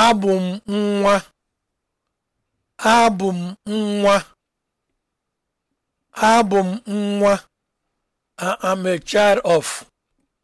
Abụ m nwa, abụ m nwa, abụ m nwa. a child of.